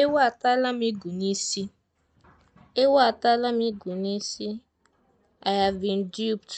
Ewu atala m igu n'isi. Ewu atala m igu n'isi. I have been duped.